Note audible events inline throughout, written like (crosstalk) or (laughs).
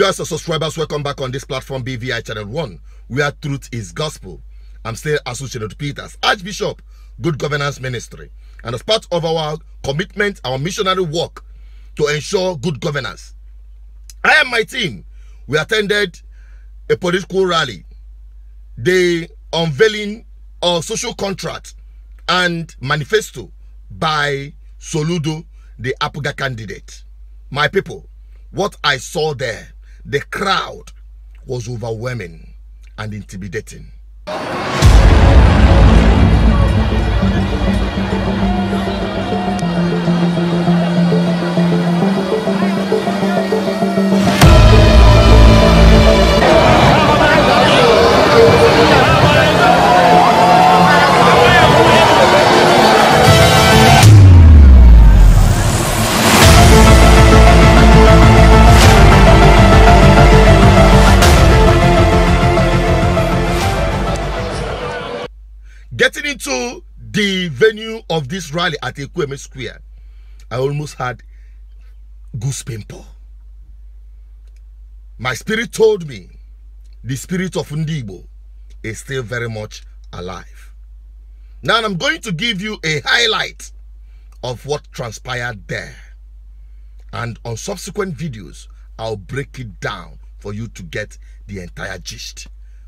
US subscribers, welcome back on this platform, BVI Channel 1, where truth is gospel. I'm still Associated Peters, Archbishop, Good Governance Ministry. And as part of our commitment, our missionary work to ensure good governance, I and my team, we attended a political rally, the unveiling of social contract and manifesto by Soludo, the Apuga candidate. My people, what I saw there the crowd was overwhelming and intimidating. venue of this rally at Ekweme Square, I almost had goose pimple. My spirit told me the spirit of Ndibo is still very much alive. Now I'm going to give you a highlight of what transpired there. And on subsequent videos, I'll break it down for you to get the entire gist.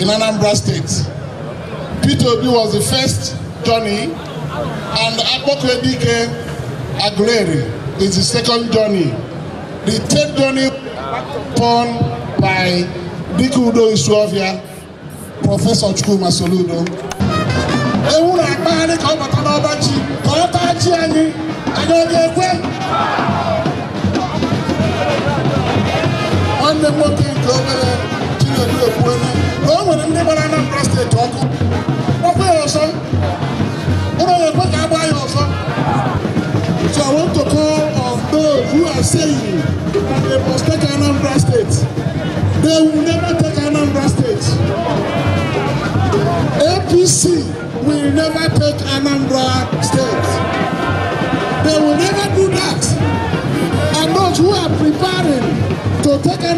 in Anambra State. Peter Obi was the first journey, and Apokwedike Aguleri is the second journey. The third journey upon by Udo Isuofia, Professor Chukuma Soludo. Ewu na ka ọ bata n'ọba ji ka ọ taa ji anyị anyị ọ ga-ekwe nwanne m nwoke nke obere Chinedu Ekwuelu I'm gonna.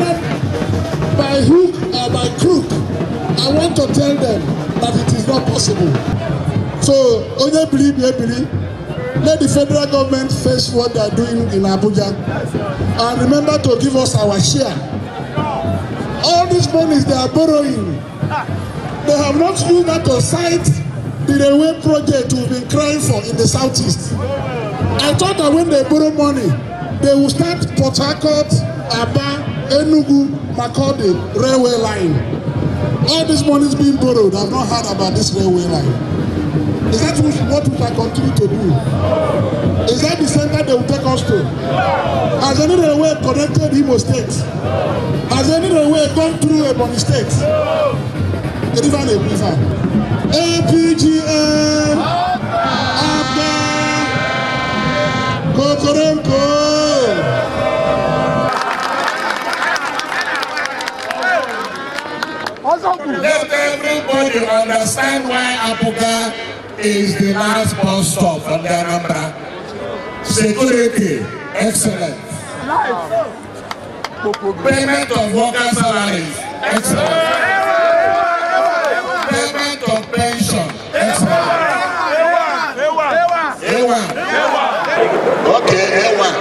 decided by hook or by crook, I want to tell them that it is not possible. So, onye believe, ye believe. Let the federal government face what they are doing in Abuja. And remember to give us our share. All these monies they are borrowing, they have not used that to cite the railway project we've been crying for in the southeast. I thought that when they borrow money, they will start Port Harcourt, Aba, Enugu Makurdi railway line. All this money is being borrowed. I've not heard about this railway line. Is that what we shall continue to do? Is that the center they will take us to? Has any railway connected Imo State? Has any railway gone through Ebony State? River and River. APGN. Abba. Kokorenko. Let everybody understand why Abuja is the last bus stop for the Anambra. Security, excellent. Payment of workers' salaries, excellent. Payment of pension, excellent. Okay, A1.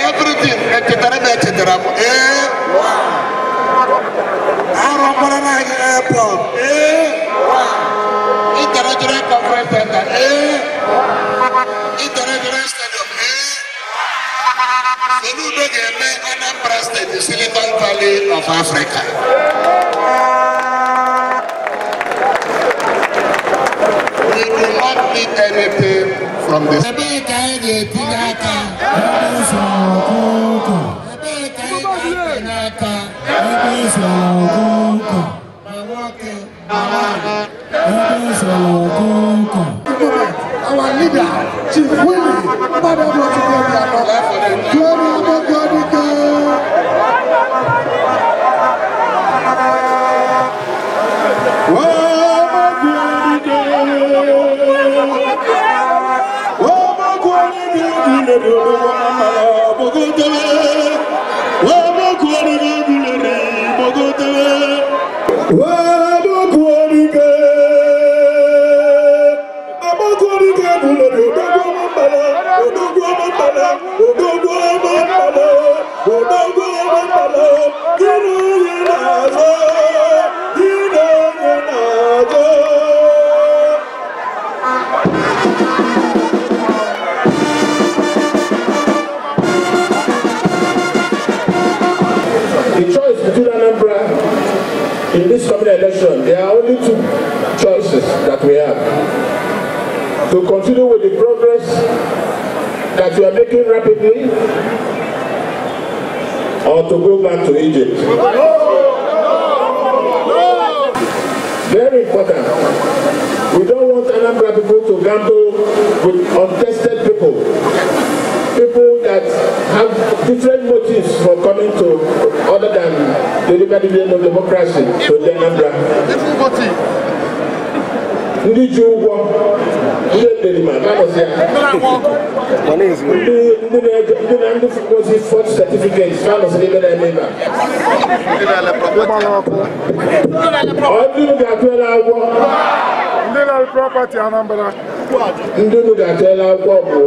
Everything, etcetera, etcetera. A1. Mike Airport. Eh? International Conference Center. Eh? International Stadium. Eh? Soludo Geme Anambra the Silicon Valley of Africa. We do not need anything from this. Unity, winning. Father, Lord, to glory and honor. Glory above glory, God. Oh, my God, resources that we have to continue with the progress that we are making rapidly or to go back to Egypt. No, no, no. Very important. We don't want Anambra people to gamble with untested people. People that have different motives for coming to other than the liberty of democracy to Anambra. Different motives ndị ji ụgwọ ndị nderima ndị fụkwozi fọt setifiket ka ebe na-eme ebe ga-atụela agwọ ndị na ga-atụela agwọ bụ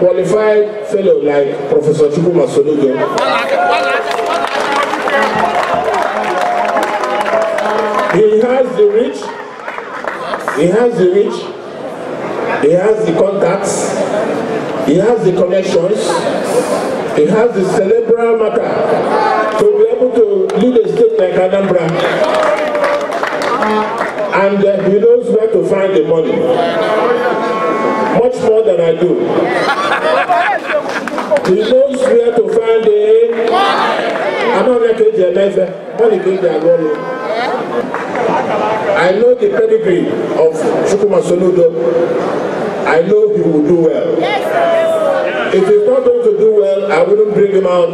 qualified fellow like professor chukwuma soludo He has the reach He has the reach, he has the contacts, he has the connections, he has the cerebral matter to be able to lead a state like Anambra. And uh, he knows where to find the money. Much more than I do. He knows where to find the... I'm not going to get the money. I'm get the money. I know the pedigree of Chukwuma Soludo. I know he will do well. Yes. If he's not going to do well, I wouldn't bring him out.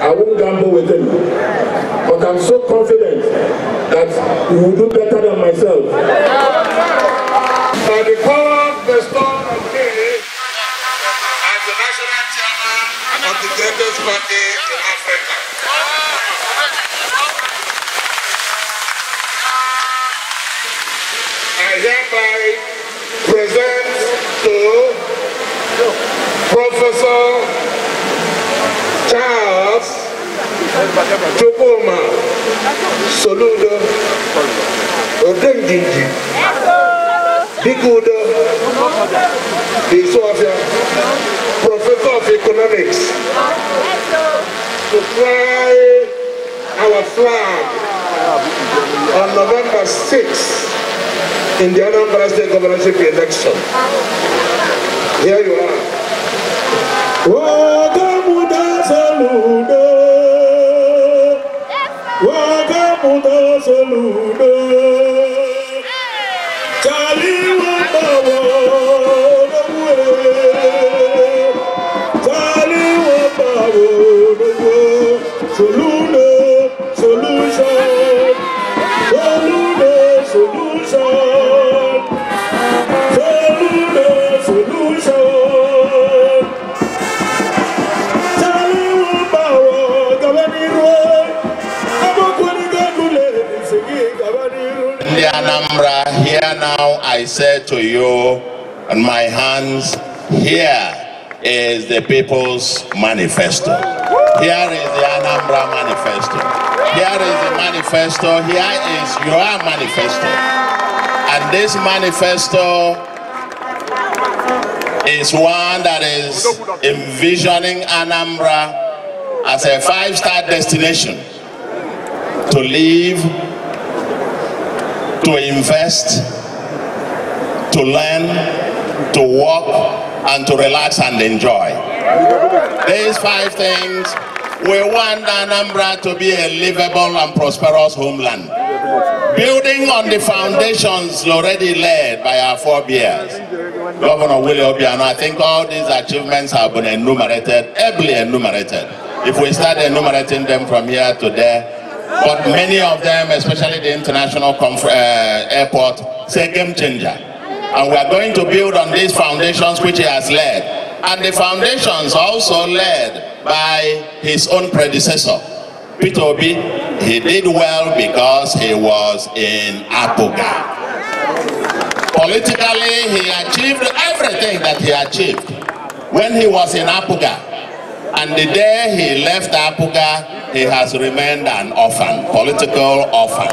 I won't gamble with him. But I'm so confident that he will do better than myself. Yeah. ololo odendindi dike udo Isuofia professor of economics to fly our flag on November 6th in the Anambra State governorship election. Here you are. Whoa! ta selu now I say to you, on my hands, here is the People's Manifesto. Here is the Anambra Manifesto. Here is the manifesto. Here is your manifesto. And this manifesto is one that is envisioning Anambra as a five-star destination to live, to invest, to learn, to walk, and to relax and enjoy. These five things, we want Anambra to be a livable and prosperous homeland. Building on the foundations already laid by our forebears, Governor Willie Obiano, I think all these achievements have been enumerated, ably enumerated. If we start enumerating them from here to there, but many of them, especially the international uh, airport, say game changer. and we are going to build on these foundations which he has laid. And the foundations also laid by his own predecessor, Peter Obi. He did well because he was in Apoga. Politically, he achieved everything that he achieved when he was in Apoga. And the day he left Apoga, he has remained an orphan, political orphan.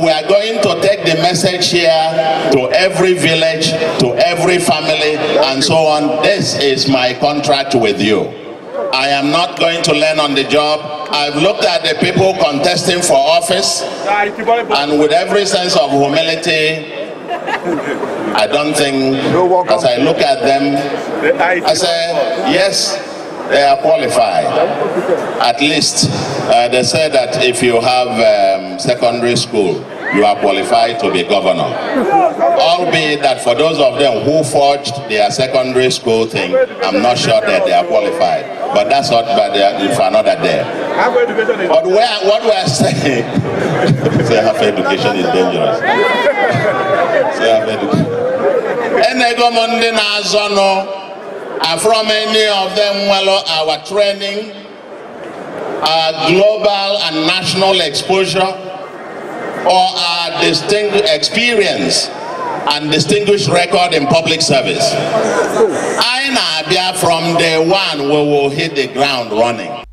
We are going to take the message here to every village, to every family, and so on. This is my contract with you. I am not going to learn on the job. I've looked at the people contesting for office, and with every sense of humility, I don't think, as I look at them, I say, yes, they are qualified. At least uh, they say that if you have um, secondary school, you are qualified to be governor. Albeit that for those of them who forged their secondary school thing, I'm not sure that they are qualified. But that's not bad for another day. But where, what we're saying, (laughs) half education is dangerous. Self education. And from any of them well our training, our global and national exposure, or our distinguished experience and distinguished record in public service. I Abia from day one we will hit the ground running.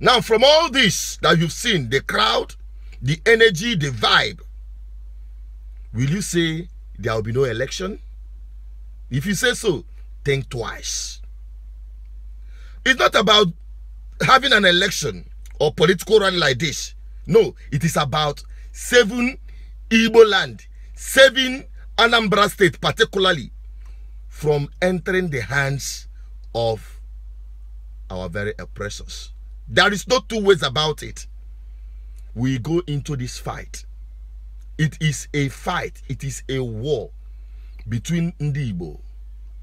Now from all this that you've seen, the crowd, the energy, the vibe, will you say there will be no election? If you say so, think twice. It's not about having an election or political rally like this. No, it is about saving Igbo land, saving Anambra State particularly from entering the hands of our very oppressors. There is no two ways about it. We go into this fight. It is a fight. It is a war between Ndibo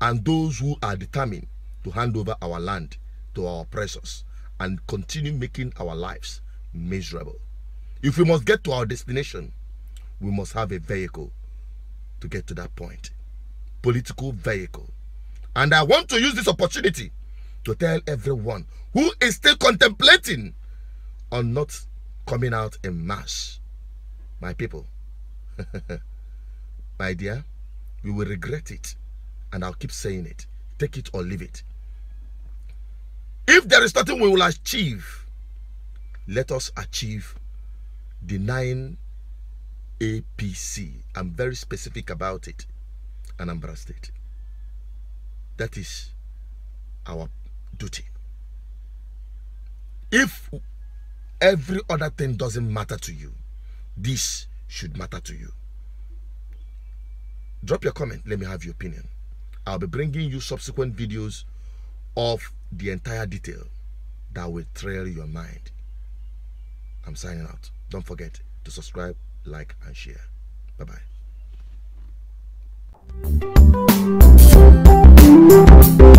and those who are determined to hand over our land to our oppressors and continue making our lives miserable. If we must get to our destination, we must have a vehicle to get to that point. Political vehicle. And I want to use this opportunity to tell everyone who is still contemplating on not coming out in mass. My people, (laughs) my dear, you will regret it and I'll keep saying it. Take it or leave it. If there is nothing we will achieve, let us achieve denying APC. I'm very specific about it. Anambra State. That is our duty. If every other thing doesn't matter to you, this should matter to you. Drop your comment. Let me have your opinion. I'll be bringing you subsequent videos of the entire detail that will trail your mind. I'm signing out. Don't forget to subscribe, like, and share. Bye-bye.